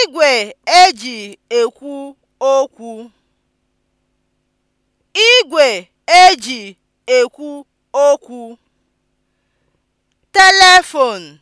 E Igwe e ji ekwu okwu. Telephone